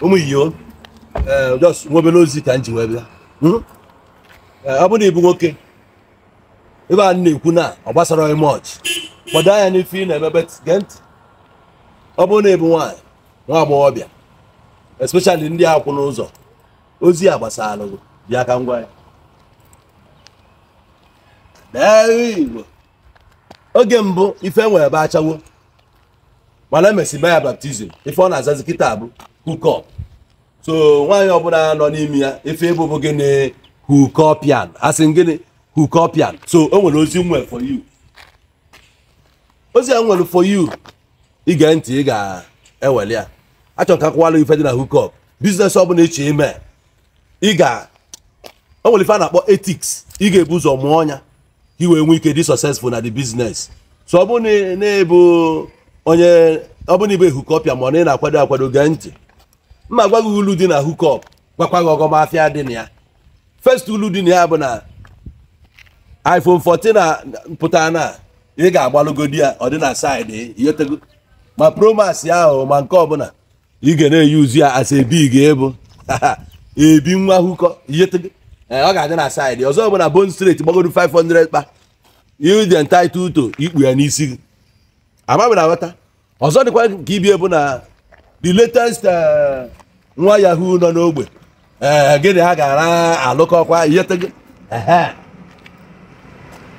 ụmụ iyo ehm. nwa nwobere ozi ka m ji wee bịa ọ hmm? ehm, bụrụ na nwoke ebe a na-ekwu na ọ gbasara onye mọch gbado anya n'ife ị na-emebe gee ntị ọ bụrụ na ebu nwaanyị nwa agbọghọbịa especially ndị akwụ n'ụzọ ozi a gbasara gị bịa ka ngwa ya oge mbụ ife nwere ebe achawo mana emesi mee ya baptizim ife ọ na-azazi kịta abụ hukọp so nwaanyị ọbụla nọ n'ime ya ife ịbụbụ gịnị hukọpian asị gịnị hukọpian so o nwere ozi nwere for you ozi a nwere for you ige ntị ị ga-eweli ya achọrọ ka akwụwala ife dị na hukọp biznes ọbụla eche ime ị ga o nwere ife a na-akpọ etiks ị ga-ebu ụzọ mụọ ọnya ka i wee nwee ike dị successful na di business so ọ bụrụ na ebu onye ọ bụrụ ibe hukọpịa ma ọ na ị na-akwado akwado gee ntị mma gwa gị ulu dị na hukọp gwakwa gị ọgọmafịa dị na ya first ulu dị na ya bụ na iphone 14 pụtara na ị ga-agbalụgodi ya ọ dị na saịdị yotego ma promas ya ahụ ma nke ọbụla ị ga na-eyuzu ya asa ebi ga-ebu ebi nwa hụkọ yotego eh, ọ ga-adị na saịdị ọzọ bụ na bon straight gbagodo 500 kpa you dị entitled to ikpu ya n'isi gị agbabere aghọta ọzọ dịkwa ka ibi ebu na the latest eh, nwa yahoo nọ n'ogbe ee eh, gịnị ha gara alụkọkwa ihetego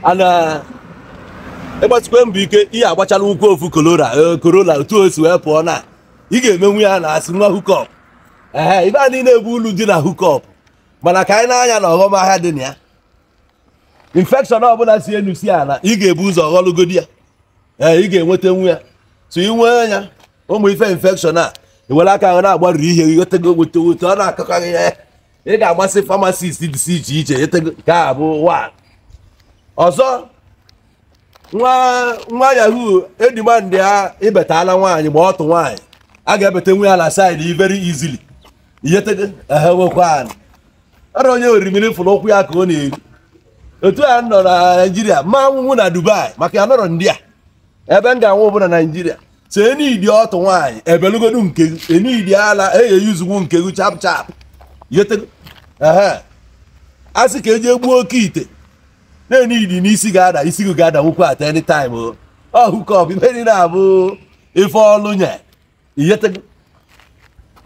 ana eh, ịgbatịkwa mbụ ike ihe agbachala ụkwụ ofu korona korona otu o wee pụọ na ị ga-emenwu ya na asị nwa hukọp ee ibe a niile ebu ulu dị na hukọp mana ka anyị na-anya na ọghọm ahịa dị na ya infekshọn ọbụla si enu si ala ị ga-ebu ụzọ ghọlụgodi ya ee eh, ị ga-enweta nwa ya so ị nwee anya ụmụ ife infekshọn a ewere aka ahụ na-agbarụ ihe gị gotego gote ọ na-akọkarị ya ị ga-agbasị famasist dịsị iche iche etego nke a bụ ọzọ nwa yahoo edimandị ya ibetala nwaanyị ma ọtụ nwaanyị a ga-ebeta nwa ya na saịdị very easily ihetego ewekwa ọrụ onye orimiri fụrụ ụkwụ ya ka ọ na eru otu a nọ na naijiria ma nwụnwụ na dubai maka ya nọrọ ndị a ebe m ga-anwụ bụ na naijiria so enidi ọtụ nwaanyị ebelugodu nke enidi ala e eyeyuzugwu nke gị chap chap a sị ka eji egbuo oke ite na-enidi n'isi ga-ada isi gị ga-ada nwukwu at any time ọhụkọp ibe niile abụ ife ọlụ nye iyetego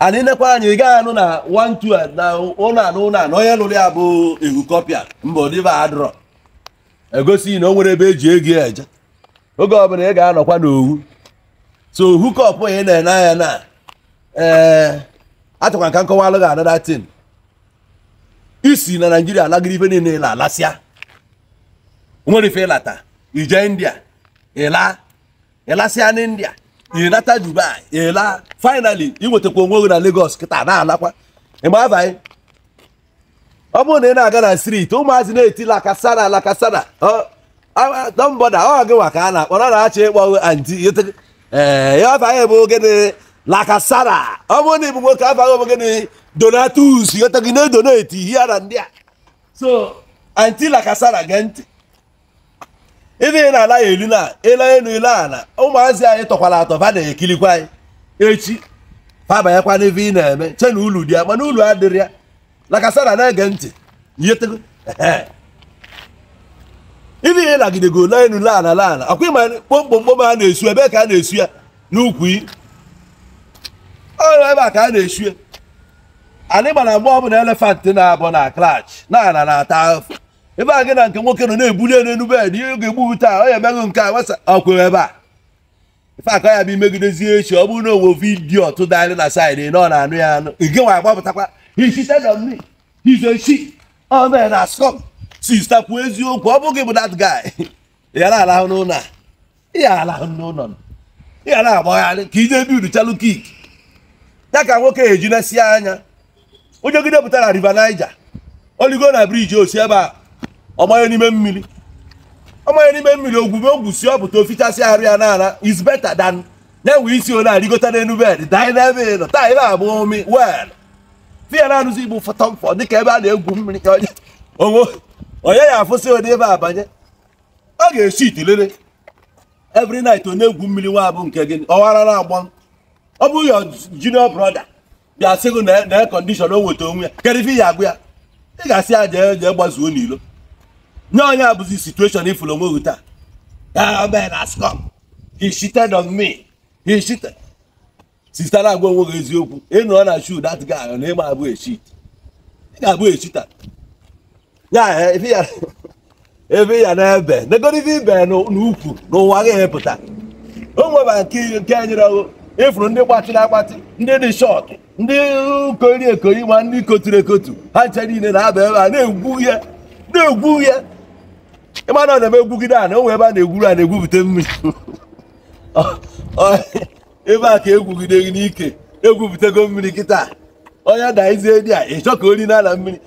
ana inekwa anya ị gaghị anụ na wantu na ụlọ anụ ụlọ anụ onye lụrụ ya bụ ehukọpịa mba ọdịba adrọ egosi na o nwere ebe eji ego eje oge ọbụla ị ga-anọkwa n'owu so ohu kọpụ ị na-ene anya na ee eh, atụkwa nka nkọwa alụghị anada tin isi na naijiria alagịrị ife niile ịla alasịa nwere ife ịlata ije india ịla ịlasịa na india ịnata dubai ịla finally iwetakwa onwe gị na lagos kịta na-alakwa ịma abaghị ọ bụrụ na ị na-aga na street ụmụazị na-etila akasana alakasana Ah, ah, nọmbọda ọ oh, gị nwa ka a na-akpọ ọ na-achọ ịkpọ anti ee ya afaghị bụ ogene lakasara ọ bụrụ na ịbụ nwoke afaghị bụ ogene donatus yọta gị na-edoneti ihe a na ndị a so anti lakasara gee ntị ebe na ala ya elu na ịla elu ịla ala ụmụazị anyị tọkwara atọ fa na-ekilikwa anyị echi fabanyekwa n'ebe ị na-eme che na ulu dị ya mana ulu adịrị ya lakasara na-ege ntị yetego ndị ihe lagidego n'elu laala laala akwa ma kpomkpomkpom a na-esu ebe ka a na-esu ya n'ukwu ọrụ ebe a ka a na-esu ya anyị gbara mgbe ọbụla elefant na-abụ na klach na-ala na-ata afọ ebe a gị na nke nwoke nọ na-ebuli elu enu bed ihe ga-egbu taa ọ ya emeghị nke a wesa ọkwere ebe a ife aka ya bụ imegidezie echi ọ bụrụ na owo vidiyo tụdalị na saịdị na ọ na-anụ ya anụ ige nwa agbapụtakwa hichite na mmiri hizochi ọmee na skọp sista kwuo eziokwu ọ bụghị bụ that guy ya na-alahụ n'ụlọ a ya alahụ n'ụlọ ya na-agbagharị ka ije bi chalụ kik ya ka nwoke ejinesi anya onye gide pụtara river Niger oligo na briji osi ebe a ọmanye n'ime mmiri ọmanye n'ime mmiri ogwu si ọ pụta ofichasị arụ ya n'ala is better than ya nwee isi ole arịgota n'elu bed dinebe nọ taa ebe abụ omi wel fiya na-anụzi igbo dị dịka ebe a na-egwu mmiri ka onye onwe onye ya afụsị ode ebe abanye ọ ga-esi itulere every night onye na-egwu mmiri nwa bụ nke gị ọwara na-agba ọ bụ ya junior brother bịa sị gị na e condition o weta onwe ya kedu ya agụ ya ị ga-asị ya jee jee gbazuo n'ilo nye onye abụzi situation ifụrụ onwe gị taa ah, he agwa onwe gị eziokwu ịnụọ na shu dat guy ahụ na ịma abụ echit ị ga-abụ echita ya eh, ebe ya na ebe negoro ibe n'ukwu n'ụwa ga-epụta o nwebara nke nyere ịfụrụ e ndị gbatịrị agbatị ndị dị shọt ndị kori ekori ma ndị koturu ekotu ha nche niile na-aba ebe a na-egwu ihe na-egwu ihe ịma na ọ na-eme egwugide a na onwe ebe a na-egwuru a na-egwupụta mmiri ebe a ka egwugide gị n'ike egwupụtago mmiri kịta onye daizie dị a ịchọ ka ori na ala mmiri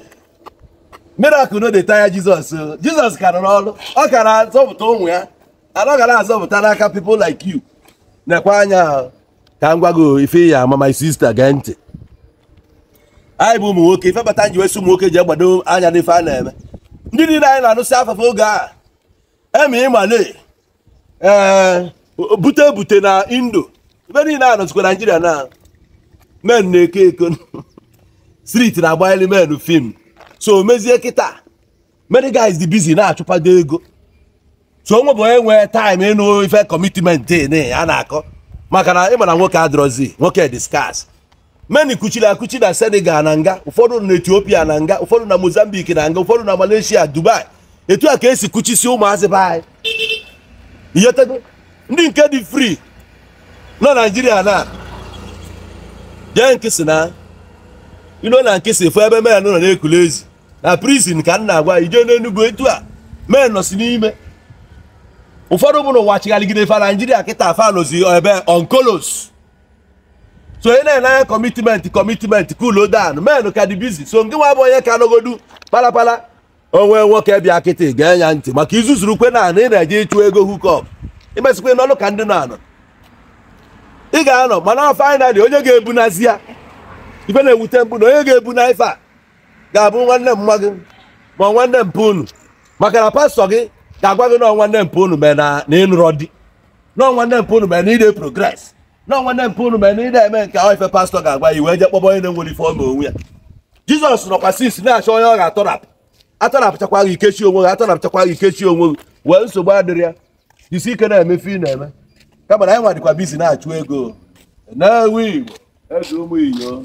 miracle no dey tire jizọs uh, jizọs kara n'ọrụ ọ kara zọpụta ụmụ ya anọghara azọpụta n'aka people like you nekwa anya ka m gwa gị oh, ife ya ama my sister gee ntị anyị bụ ụmụ nwoke ife bata nji wesi ụmụ nwoke ji egbado anya n'ife a na-eme ndị niile anyị na-anụsị afafụ oge a emi ịmale ee eh, bute bute na indo ibe niile a nọzikwa naijiria na men na-eko eko street na-agbanyeli men fim so mezie kịta many guys dị busy na-achụkwado ego so onwe bụ onye nwee time ịnụ ife commitment a na-akọ maka na ịma na nwoke adịrọzi nwoke dị scarce meni kuchiri akuchi na Senegal na nga ụfọdụ na Ethiopia na nga ụfọdụ na Mozambique na nga ụfọdụ na malesia Dubai etu a ka esi kuchisi ụmụazị be iyetego ndị nke dị fri nọ Naijiria na jee nkịsị ilo na nkịsị fụ ebe men nọ na-ekule ezi na prizin ka m na-agwa ije n'enugwu etu a men nọsi n'ime ụfọdụ ụmụ n'ụwa chigharịgide fa naijiria kịta afa nọzi ebe onkolos so onye na-enye anya kọmitmenti kọmitmenti kulo dan men ka dị bizi so nke nwa bụ onye ka n'ogodu palapala onwe nwoke bịa kịtị gaa ya ntị maka izuzuru kwe na ị na-eje ịchụ ego hukọp imesịkwe n'ọnụ ka ndị na-anọ ị ga-anọ mana finali onye ga-ebunazi ya ife na-ewute mbụ na onye ga-ebu na ife a ga-abụ nwanne m nwa gị ma nwanne mpa unu maka na pastọ gị ga-agwa gị nọọ nwanne mpa unu mee na ịnụrọ di nọọ nwanne mpa unu mee na ide progres nọọ nwanne mpa unu mee na ide eme nke ahụ ife pastọ ga-agwa ya wee je kpọba onye na-enwere ife ọma onwe ya jizọs nọkwa sis na-achọ onye ọ ga-atọrapụ atọrapụchakwa gị ikechi onwe gị atọrapụchakwa gị ikechi onwe gị wee nsogbu adịrị ya isi ike na-emefe ị na-eme kama na anyị nwadịkwa bizi na-achụ ego na igbo ụmụ